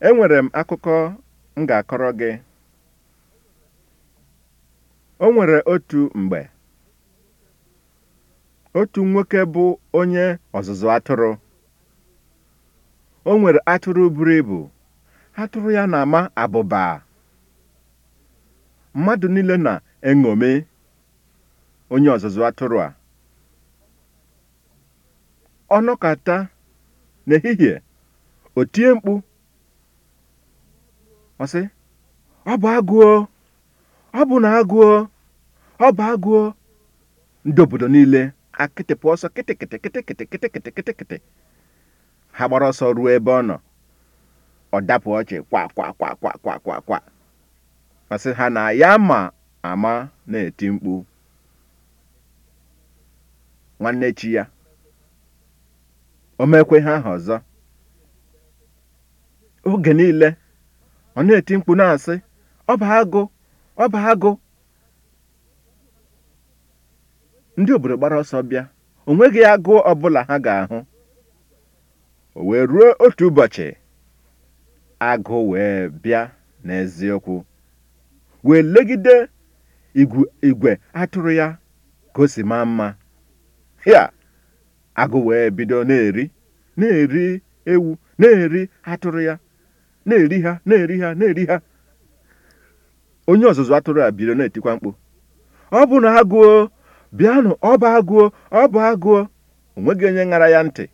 enwere m akụkọ m ga-akọrọ gị o nwere otu mgbe otu nwoke bụ onye ọzụzụ atụrụ o nwere atụrụ buru ibu atụrụ ya na-ama abụba mmadụ niile na-eṅomi onye ọzụzụ atụrụ a ọ nọkata n'ehihie o tie mkpu ọ sị ọ bụ agụọ ọ bụ na agụọ ọ bụ agụọ ndị obodo niile akịtịpụ ọsọ kịtịkịtị kịtịkịtị kịtịkịtị kịtịkịtị ha gbara ọsọ ruo ebe ọ nọ ọ dapụ ọchị kwa kwa kwa kwa kwa kwa kwa masị ha na ya ma ama na-eti mkpu nwanne chi ya o mekwe ha aha ọzọ oge niile ọ na-eti mkpu na-asị ọba agụ ọba agụ ndị obodo gbara ọsọ bịa o nweghị agụụ ọbụla ha ga-ahụ o wee ruo otu ụbọchị agụ wee bịa n'eziokwu wee legide igwe atụrụ ya ka o mma ya agụ wee bido na-eri na-eri ewu na-eri atụrụ ya na-eri ha na-eri ha na-eri ha onye ọzụzụ atụrụ a biri na-etikwa mkpu ọ bụ na agụọ bịanụ ọ bụ agụọ ọ bụ agụọ onweghị onye ṅara ya ntị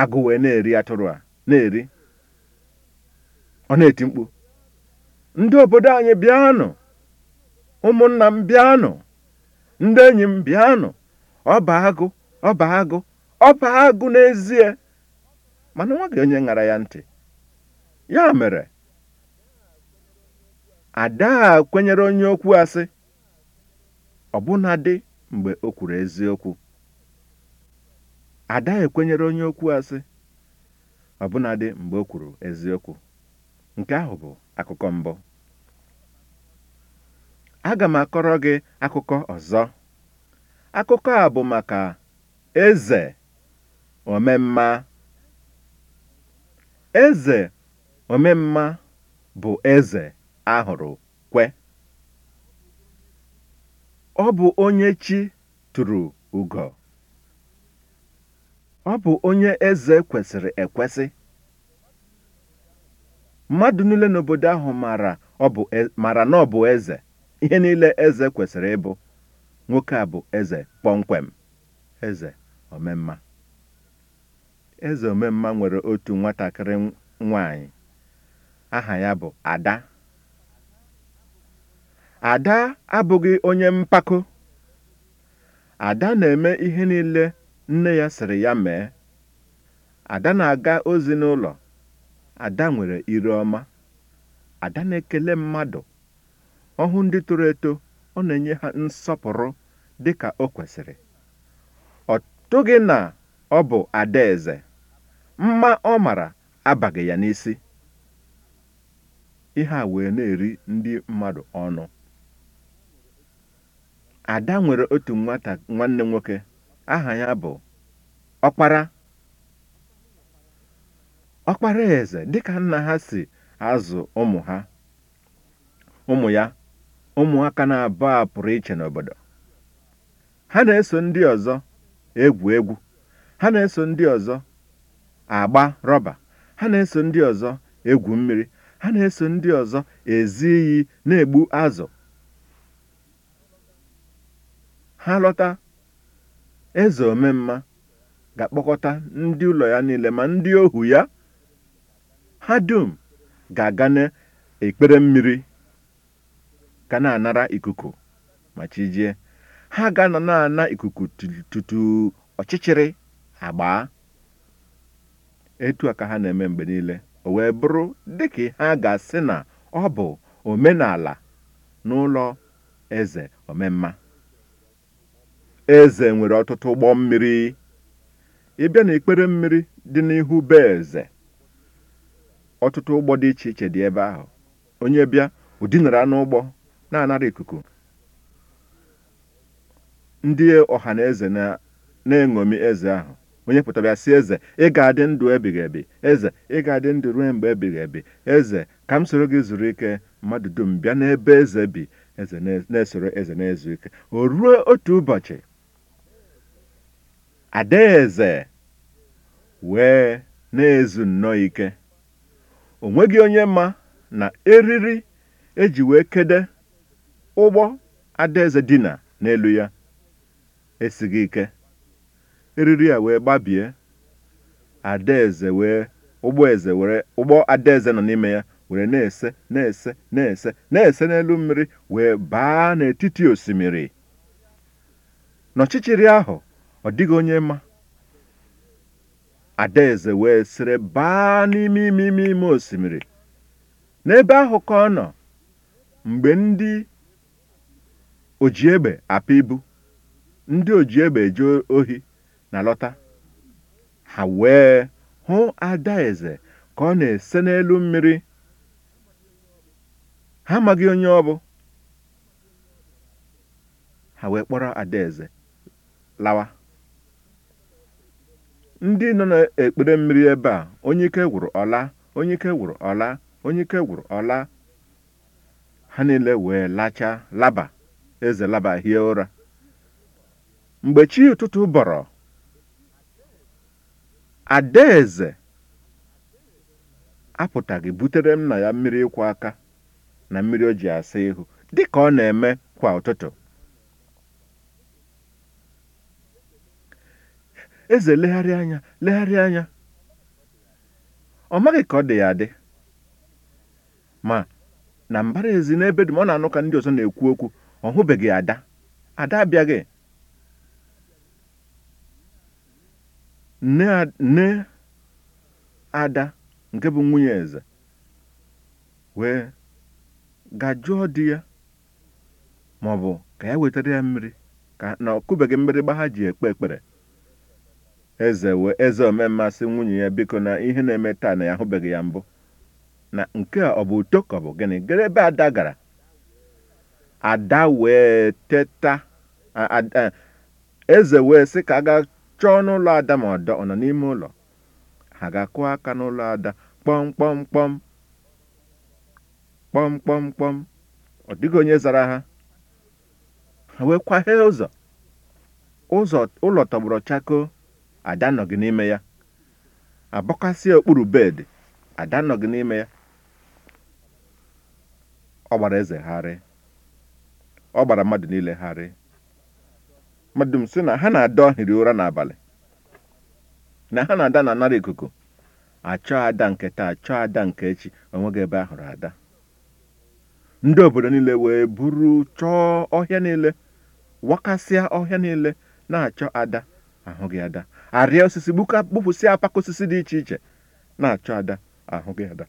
agụ wee na-eri atụrụ a na-eri ọ na-eti mkpu ndị obodo anyị bịanụ ụmụnna m bịanụ ndị enyi m bịanụ ọ bụ agụ ọ bụ agụ ọ agụ n'ezie mana nwa gị onye ṅara ya ntị ya mere ada a kwenyere onye okwu asị ọ mgbe o ekwenyere onye okwu asị dị mgbe o kwuru eziokwu nke ahụ bụ akụkọ mbụ aga m akọrọ gị akụkọ ọzọ akụkọ a bụ maka eze omemma Eze omemma bụ eze ahụrụ kwe. Ọ bụ onye chi tụrụ ugo. Ọ bụ onye eze kwesịrị ekwesị. Mmadụ niile n'obodo ahụ mara ọ e, na ọ eze. Ihe niile eze kwesịrị ịbụ. Nwoke a bụ eze kpọmkwem. Eze omemma. mma nwere otu nwatakịrị nwanyị aha ya bụ Ada. Ada abụghị onye mpako. Ada na-eme ihe niile nne ya sịrị ya mee. Ada na-aga ozi n'ụlọ. Ada nwere ire ọma. Ada na-ekele mmadụ. ọhụụ ndị toro eto, ọ na-enye ha nsọpụrụ dịka o kwesịrị. Ọ tụghị na ọ bụ adaeze. mma ọ mara abaghị ya n'isi ihe a wee na-eri ndị mmadụ ọnụ ada nwere otu nwata nwanne nwoke aha ya bụ ọkpara ọkpara eze dịka nna ha si azụ ụmụ ha ụmụ ya ụmụaka na-abụ a pụrụ iche n'obodo ha na-eso ndị ọzọ egwu egwu ha na-eso ndị ọzọ agba rọba ha na-eso ndị ọzọ egwu mmiri ha na-eso ndị ọzọ ezi iyi na-egbu azụ ha lọta eze omemma ga-akpọkọta ndị ụlọ ya niile ma ndị ohu ya ha dum ga-aga n'ekpere mmiri ga na-anara ikuku ma chi ha ga na-ana ikuku tutu ọchịchịrị agbaa etu a ka ha na-eme mgbe niile o wee bụrụ dịka ha ga-asị na ọ bụ omenala n'ụlọ eze omemma eze nwere ọtụtụ ụgbọ mmiri ịbịa na ikpere mmiri dị n'ihu be eze ọtụtụ ụgbọ dị iche iche dị ebe ahụ onye bịa ụdinara n'ụgbọ na-anara ikuku ndị ọha na eze na-eṅomi eze ahụ onye pụtara sị eze ị ga-adị ndụ ebighị ebi eze ị ga-adị ndụ ruo mgbe ebighị ebi eze ka m soro gị zuru ike mmadụ dum bịa n'ebe eze bi eze na-esoro eze na-ezu ike o ruo otu ụbọchị adaeze wee na-ezu nnọọ ike o nweghị onye ma na eriri eji wee kede ụgbọ adaeze dina n'elu ya esighị ike eriri a wee gbabie adaeze wee ụgbọ adaeze nọ n'ime ya were na-ese na-ese na-ese na-ese n'elu mmiri wee baa n'etiti osimiri n'ọchịchịrị ahụ ọ dịghị onye mma adaeze wee sịrị baa n'ime ime ime ime osimiri n'ebe ahụ ka ọ nọ mgbe ndị ojiegbe apụ ibu ndị ojiegbe eje ohi na-alọta ha wee hụ adaeze ka ọ na-ese n'elu mmiri ha amaghị onye ọ bụ ha wee kpọrọ adaeze lawa ndị nọ n'ekpere mmiri ebe a onye ike gwụrụ ọla onye ike gwụrụ ọla onye ike gwụrụ ọla ha niile wee lacha laba eze laba hie ụra mgbe chi ụtụtụ bọrọ Adaeze apụtaghị butere nna ya mmiri ịkwụ aka na mmiri o ji asa ihu dịka ọ na-eme kwa ụtụtụ. Eze legharị anya legharị anya ọ maghị ka ọ dị ya adị ma na mbara ezi n'ebe dum ọ na-anụ ka ndị ọzọ na-ekwu okwu ọ hụbeghị ada ada abịaghị nne ada nke bụ nwunye eze wee gajụọ dị ya ma ọ bụ ka ya wetara ya mmiri ka na ọ kụbeghị mgbịrịgba ha ji ekpe ekpere eze wee eze omemmasị nwunye ya biko na ihe na-eme taa na ya ahụbeghị ya mbụ na nke a ọ bụ uto ka ọ bụ gịnị gere ebe ada gara ada wee teta eze wee sị ka a chọọ n'ụlọ ada ma ọdọ ọ nọ n'ime ụlọ ha ga-akụ aka n'ụlọ ada kpọmkpọmkpọm kpọmkpọmkpọm ọ dịghị onye zara ha ha wee kwaghee ụzọ ụlọ tọgbọrọ chakoo ada gị n'ime ya abọkasịa okpuru bed ada gị n'ime ya ọ gbara eze ọ gbara mmadụ niile gharịị madum sị na ha na-ada ohiri ụra n'abalị na ha na-ada na anara ikuku achọọ ada nke taa chọọ ada nke echi onweghị ebe ahụrụ ada ndị obodo niile wee buru chọọ ọhịa niile wakasịa ọhịa niile na-achọ ada ahụghị ada arịa osisi gbupụsịa apaka osisi dị iche iche na-achọ ada ahụghị ada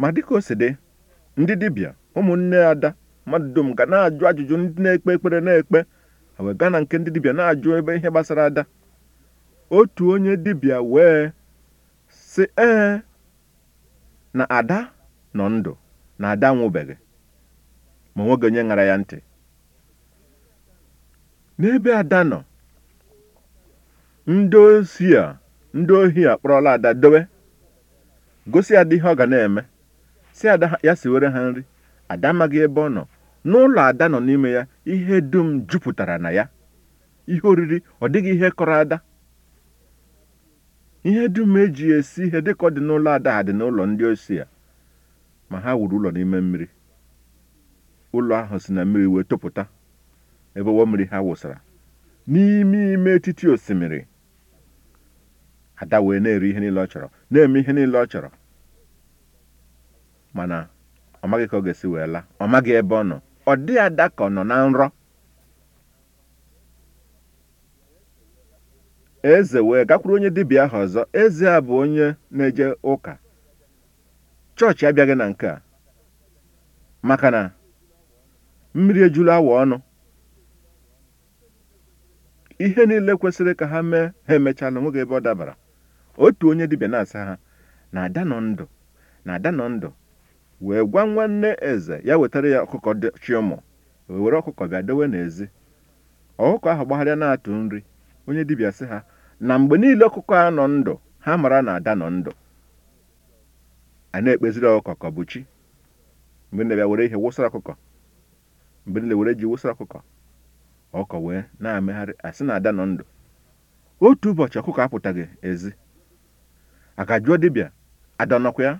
ma dịka o si dị ndị dibịa ụmụnne ada mmadụ dum ga na-ajụ ajụjụ ndị na-ekpe ekpere na-ekpe wee gaa na nke ndị dibịa na-ajụ ebe ihe gbasara ada otu onye dibịa wee sị ee na ada nọ ndụ na ada nwụbeghị ma nwoge onye ṅara ya ntị n'ebe ada nọ ndị ozi a ndị ohi kpọrọla ada dowe gosi ada ihe ọ ga na-eme si ada ya si were ha nri ada amaghị ebe ọ nọ n'ụlọ ada nọ n'ime ya ihe dum jupụtara na ya ihe oriri ọ dịghị ihe kọrọ ada ihe dum eji esi ihe dịka ọ dị n'ụlọ ada ha dị n'ụlọ ndị osi ya ma ha wuru ụlọ n'ime mmiri ụlọ ahụ si na mmiri wee tụpụta ebe ụwa mmiri ha wụsara n'ime ime etiti osimiri ada wee na-eri ihe niile ọ chọrọ na-eme ihe niile ọ chọrọ mana ọ maghị ka ọ ga-esi wee laa ọ maghị ebe ọ nọ ọ dịghị ada ka ọ nọ na nrọ eze wee gakwuru onye dibịa ahụ ọzọ eze a bụ onye na-eje ụka chọọchị abịaghị na nke a maka na mmiri ejulu awa ọnụ ihe niile kwesịrị ka ha mee ha emechala onweghị ebe ọ dabara otu onye dibịa na-asa ha na ada nọ ndụ na ada nọ ndụ wee gwa nwanne eze ya wetara ya ọkụkọ dị chiọmọ were ọkụkọ bịa dowe n'ezi ọkụkọ ahụ gbagharịa na-atụ nri onye dibịa sị ha na mgbe niile ọkụkọ a nọ ndụ ha mara na ada nọ ndụ a na-ekpeziri ọkụkọ ka bụ chi mgbe na were ihe wụsara ọkụkọ mgbe niile were ji wụsara ọkụkọ ọkụkọ wee na-amegharị asị na ada nọ ndụ otu ụbọchị ọkụkọ apụtaghị ezi aka jụọ dibịa ada nọkwa ya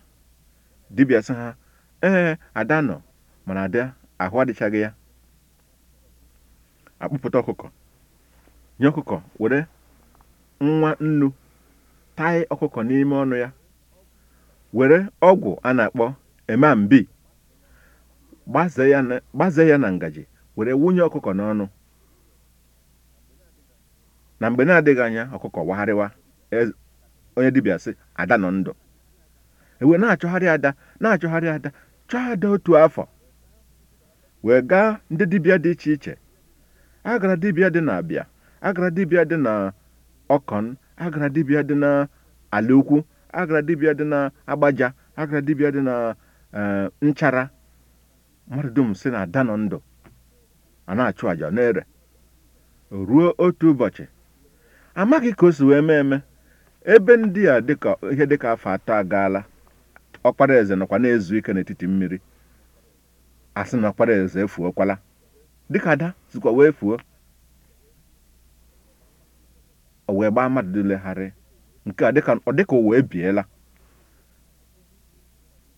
dibịa sị ha ee Ada nọ mana Ada ahụ adịchaghị ya akpụpụta ọkụkọ nye ọkụkọ were nwa nnu tai ọkụkọ n'ime ọnụ ya were ọgwụ a na-akpọ emambi gbaze ya na ngaji were wunye ọkụkọ n'ọnụ na mgbe na-adịghị anya ọkụkọ wagharịwa e, onye dibịa si ada nọ ndụ ewe na-achọgharị ada na-achọgharị ada chọọ ada otu afọ wee gaa ndị dibịa dị iche iche agara dibịa dị na abịa agara dibịa dị na ọkọn agara dibịa dị na ukwu agara dibịa dị na agbaja agara dibịa dị na nchara mmadụ dum si na ada nọ ndụ a na-achụ àjà na-ere ruo otu ụbọchị amaghị ka o si wee mee eme ebe ndị a dịka ihe dịka afọ atọ agaala ọkpara eze nọkwa na-ezu ike n'etiti mmiri asị na ọkpara eze efuokwala dịka ada sikwa wee fuo o wee gbaa mmadụ dilegharị nke a ọ dịka ụwa ebiela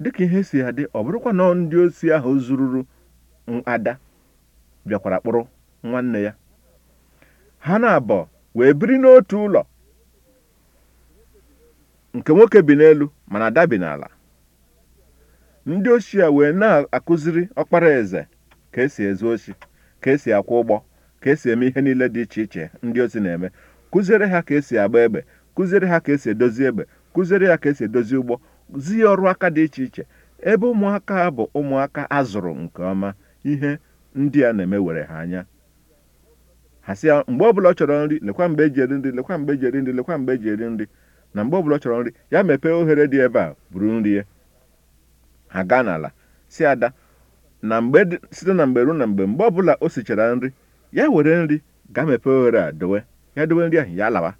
dịka ihe si adị ọ bụrụkwa na ndị osi ahụ zururu ada bịakwara kpụrụ nwanne ya ha na-abọ wee biri n'otu ụlọ nke nwoke bi n'elu mana ada bi n'ala ndị ochie wee na-akụziri ọkpara eze ka esi ezu ochi ka esi akwụ ụgbọ ka esi eme ihe niile dị iche iche ndị ozi na-eme kụziere ha ka esi agba egbe kụziere ha ka esi edozi egbe kụziere ya ka esi edozi ụgbọ zi ọrụ aka dị iche iche ebe ụmụaka bụ ụmụaka a zụrụ nke ọma ihe ndị a na-eme were ha anya ha sị ya mgbe ọbụla ọ chọrọ nri lekwa mgbe eji nri lekwa mgbe eji nri lekwa mgbe eji nri na mgbe ọbụla ọ chọrọ nri ya mepee oghere dị ebe a buru nri ya aga n'ala si ada na mgbe site na mgbe ruo na mgbe mgbe ọbụla o sichara nri ya were nri gaa mepee oghere a dowe ya dowe nri ahụ ya lawa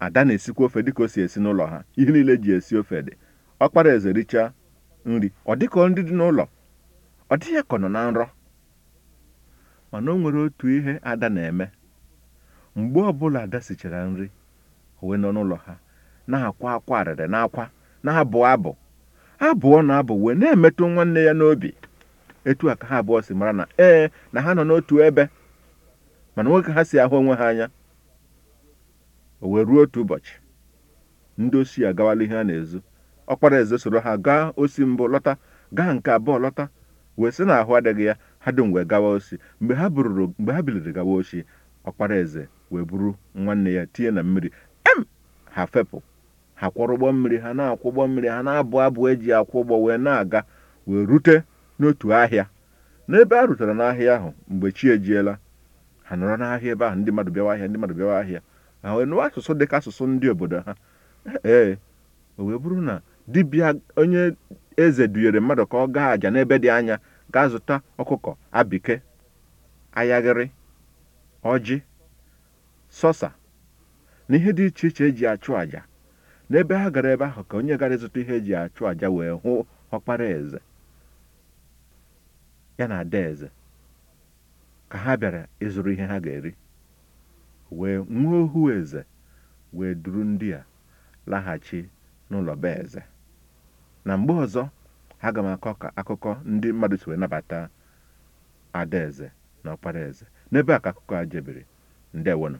ada na-esikwa ofe dịka o si esi n'ụlọ ha ihe niile ji esi ofe dị ọkpara eze richaa nri ọ dịka ndị dị n'ụlọ ọ dịghị ka ọ nọ na nrọ mana o nwere otu ihe ada na-eme mgbe ọbụla ada sichara nri o wee nọ n'ụlọ ha na-akwa akwa arịrị na akwa na-abụ abụ abụọ na-abụ wee na-emetụ nwanne ya n'obi etu a ka ha abụọ si mara na ee na ha nọ n'otu ebe mana nwoke ha si ahụ onwe ha anya o wee ruo otu ụbọchị ndị osi agawala ihe a na-ezu ọkpara eze soro ha gaa osi mbụ lọta gaa nke abụọ lọta wee sị na ahụ adịghị ya ha dum wee gawa osi mgbe ha bururu mgbe ha biliri gawa osi ọkpara eze wee buru nwanne ya tinye na mmiri em ha fepụ ha ụgbọ mmiri ha na-akwọ mmiri ha na-abụ abụ eji akwụ ụgbọ wee na-aga wee rute n'otu ahịa n'ebe a rutere n'ahịa ahụ mgbe chi ejiela ha nọrọ n'ahịa ebe ahụ ndị mmadụ bịawa ahịa ndị mmadụ bịawa ahịa ha wee nụwa asụsụ dịka asụsụ ndị obodo ha ee o wee bụrụ na dibịa onye eze dunyere mmadụ ka ọ gaa aja n'ebe dị anya gaa zụta ọkụkọ abike ayaghịrị ọjị sọsa na ihe dị iche iche eji achụ aja. n'ebe ha gara ebe ahụ ka onye gara ịzụta ihe ji achụ àja wee hụ ọkpara eze ya na ada eze ka ha bịara ịzụrụ ihe ha ga-eri wee nwa ohu eze wee duru ndị a laghachi n'ụlọ be eze na mgbe ọzọ aga m akọ ka akụkọ ndị mmadụ si wee nabata adaeze na ọkpara eze n'ebe a ka akụkọ a jebiri ndewonụ